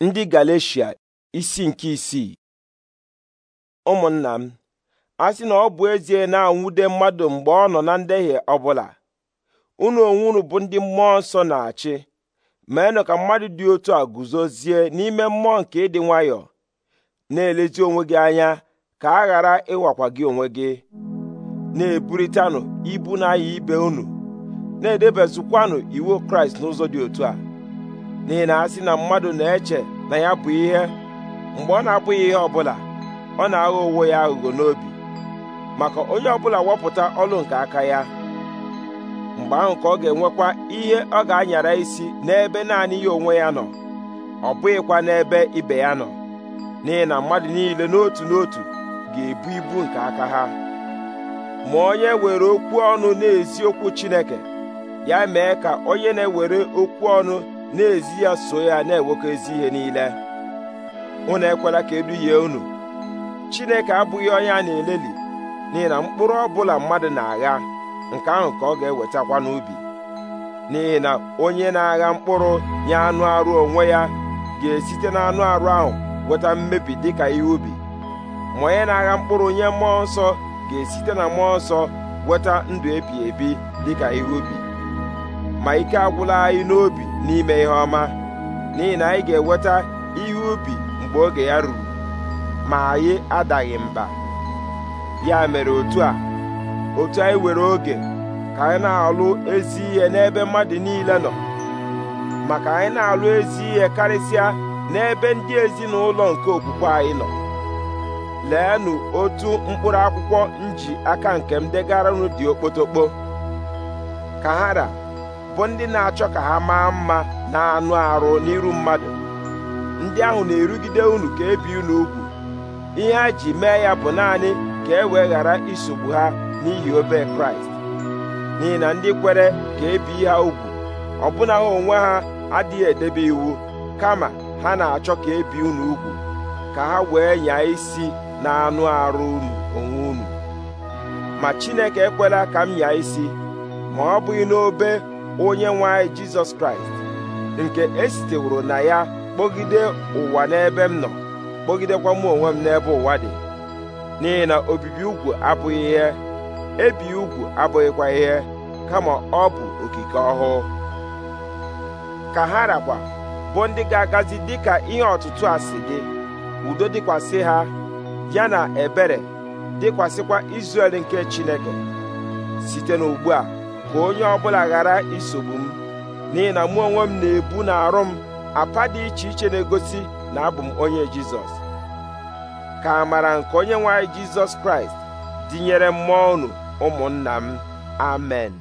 ndị galecia isi nke isii ụmụnna m a sị na ọ bụ ezie na-anwude mmadụ mgbe ọ nọ na ndehie ọbụla unu onwe unu bụ ndị mmụọ nsọ na-achị meenụ ka mmadụ dị otu a guzozie n'ime mmụọ nke ịdị nwayọọ na-elezi onwe gị anya ka a ghara ịwakwa gị onwe gị na-eburitanụ ibu na-aya ibe unu na edebezikwanụ iwu Kraịst n'ụzọ dị otu a n'ihi na a na mmadụ na-eche na ya bụ ihe mgbe ọ na-abụghị ihe ọ bụla ọ na-aghọ onwe ya aghụghọ n'obi maka onye ọbụla wepụta ọlụ nke aka ya mgbe ahụ ka ọ ga-enwekwa ihe ọ ga-anyara isi n'ebe naanị ya onwe ya nọ ọ bụghịkwa n'ebe ibe ya nọ n'ihi na mmadụ niile n'otu n'otu ga-ebu ibu nke aka ha ma onye were okwu ọnụ na-ezi okwu Chineke ya mee ka onye na-ewere okwu ọnụ na-ezi ya so ya na enwekọ ezi ihe niile unu ekwela ka eduhie unu Chineke abụghị onye a na-eleli n'ihi na mkpụrụ ọbụla mmadụ na-agha nke ahụ ka ọ ga-ewetakwa n'ubi n'ihi na onye na-agha mkpụrụ nye anụ arụ onwe ya ga-esite na anụ arụ ahụ weta mmebi dịka ihe ubi ma onye na-agha mkpụrụ nye mmụọ nsọ ga-esite na mmụọ nsọ weta ndụ ebi ebi dịka ihe ubi ma ike agwụla anyị n'obi n'ime ihe ọma n'ihi na anyị ga-enweta ihe ubi mgbe oge ya ruru ma anyị adaghị mba ya mere otu a otu anyị were oge ka anyị na-alụ ezi ihe n'ebe mmadụ niile nọ maka anyị na-alụ ezi ihe karịsịa n'ebe ndị ezinụlọ nke okwukwe anyị nọ leenụ otu mkpụrụ akwụkwọ nji aka nke m degara dị okpotokpo ka ra. bụ ndị na-achọ ka ha maa mma na anụ arụ n'iru mmadụ ndị ahụ na-erugide unu ka ebi unu ugwu ihe a ji mee ya bụ naanị ka e wee ghara isogbu ha n'ihi obe kraịst n'ihi na ndị kwere ka ebi ha ugwu ọbụna ha onwe ha adịghị edebe iwu kama ha na-achọ ka ebi unu ugwu ka ha wee nyaa isi na anụ arụ unu onwe unu ma Chineke ekwela ka m nyaa isi ma ọ bụghị n'obe onye nwe anyị jizọs kraịst nke esiteworo na ya kpọgide ụwa n'ebe m nọ kpọgidekwa m onwe m n'ebe ụwa dị n'ihi na obibi ugwu abụghị ihe ebi ugwu abụghịkwa ihe kama ọ bụ okike ọhụụ ka ha rakwa bụ ndị ga-agazi dịka ihe ọtụtụ a si gị udo dịkwasị ha ya na ebere dịkwasịkwa Izrel nke Chineke site n'ugbu a ka onye ọbụla ghara isogbu m n'ihi na mụ onwe m na-ebu na arụ m apa dị iche iche na-egosi na abụ m onye jizọs ka amara nke onye nwe anyị jizọs kraịst dịnyere mmụọ unu ụmụnna m amen